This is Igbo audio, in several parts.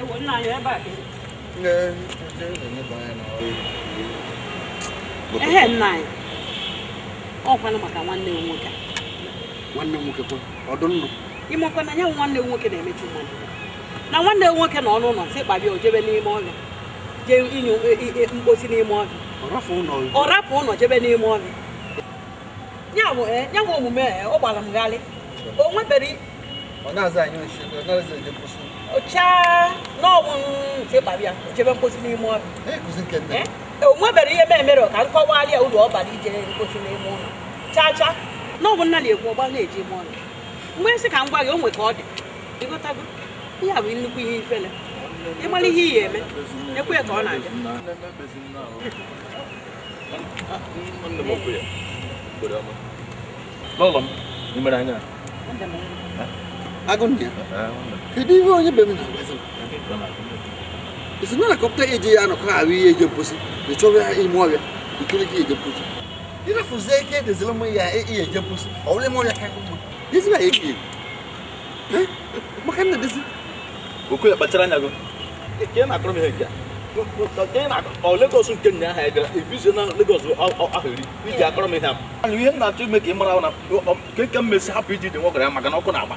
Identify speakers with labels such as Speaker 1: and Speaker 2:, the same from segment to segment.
Speaker 1: cái quấn này vậy bà
Speaker 2: nghe chứ đừng có bài nào ehe nna anyị
Speaker 1: ọ kwana maka nwanne m nwoke
Speaker 2: nwanne m nwoke ọdụ nnụ
Speaker 1: ịmakwa na ya nwanne m nwoke na-emechi mmadụ na nwanne m nwoke na ọnụ ụlọ sị kpabịa ojebe n'ime ọhịa jee inye mkposi n'ime ọhịa ọ rapụ ụlọ jebe n'ime ọhịa ya bụ eh, omume eh, ọ gbara m ọ na-aza anyị ozi eje mkposi ụchaa n'ọnwụ nke gbara ya jebe mkposi eh? n'ime ọhịa o nwebere ihe mere ka nkọwalị ya ụlọ ọbara ije mkposi n'ime ụlọ chaa chaa n'ọnwụ nna na na-eji ime mgbe nsị ka m gwa gị o nwe ka ọ dị ịgotago ihe a nnukwu ihe ihe iyi eme
Speaker 2: ọ na agunnya kedi wo nye bem na bezo isina na kopta eje ya no kwa awi eje posi de chowa e mo awia ikiri ki eje posi ina fuze ke de zelo mo ya e eje posi awle mo ya kan mo disi ba eje eh makan na
Speaker 3: disi oku ya batara nyago ke na akro me hekia ọ Lagos nke nna ahụ gara ebizie na Lagos ahụri iji akọrọ m ihe a ihe m na-achọ ime ka ị mara na ka ka mmesi hapụ iji dị nwoke ya maka na ọkụ na-agba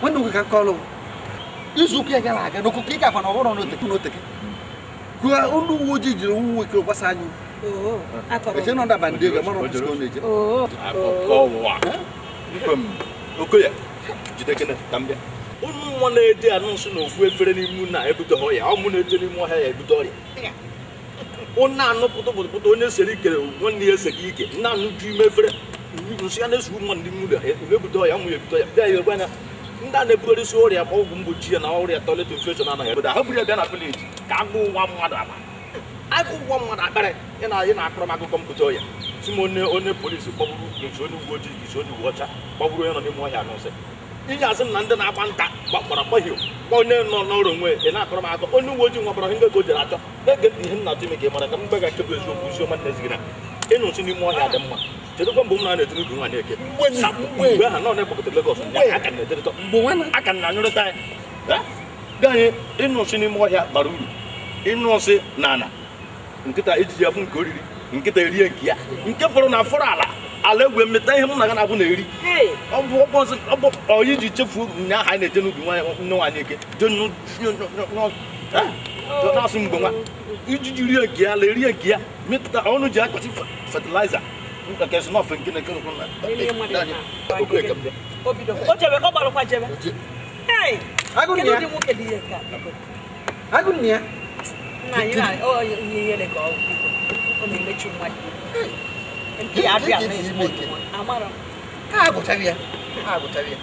Speaker 2: nwanne nwoke ka kọlụ izu ụka gara aga n'okụkọ ị gakwa na ọhụrụ n'oteke n'oteke gụọ ndị uwe ojii ji, nwa nwoke gbasa anyị eche nọ ndaba ndị ego mara na-eje okoya na na na
Speaker 3: ya O onye sere ikere nwanne ya ike o anụ nsụyanesi mmadụ dị muda ebudo ya nwụ ya ebudo ya bịa ya ebe anya ndị a na isi ọrịa kwa ọgwụ mgbochi ya na ọrịa toilet infection anaghị ebodo ha buru ya bịa na vileji ka agụ ụwa mmadụ aba agụ ụwa mmadụ akparị ị na-akọrọ m akụkọ ọya si m onye onye polisi kpọgburu isi onye uwe ojii isi onye ọcha kpọgburu onye nọ n'ime ọhịa n'ụsị na ndị na-agba nta onye nọ n'ọrụ onwe ị na m onye uwe ojii ihe achọ na-ege ihe m na ka ị mara ka m gbaga eziokwu isi ọma na ịnụ n'ime ọhịa dị mma kedụkwa mgbe m na-etiri udu nwa na-eke mgbe ha nọ na aka na anyụrịta ya dị anyị ịnụ nsị n'ime ọhịa bara uru ịnụ nsị na ala nkịta ejiji afụ nke oriri nkịta erie nke ya nke fọrọ na afọrọ ala ala egwe mmeta ihe m na gana abụ na-eri ọyị ji chefuo nya aha na-eje n'ubi nne nwaanyị eke na-asụ mgbe nwa ijiji rie nke ya ala erie nke ya ọnụ ji akpati fatịlaiza nka kɛ suma fɛn kelen kelen kɔnɔ la
Speaker 1: o
Speaker 3: jɛbɛ ko balo ka jɛbɛ
Speaker 1: kɛnɛ di mun kɛ di
Speaker 2: ye ka agu nia na yina o ye
Speaker 1: yele ka o o ni mechu mwa nti abi abi amara
Speaker 2: ka agu tabia
Speaker 1: agu tabia